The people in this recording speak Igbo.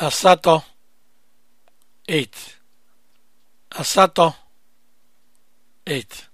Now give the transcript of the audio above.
asato 8 asatọ 8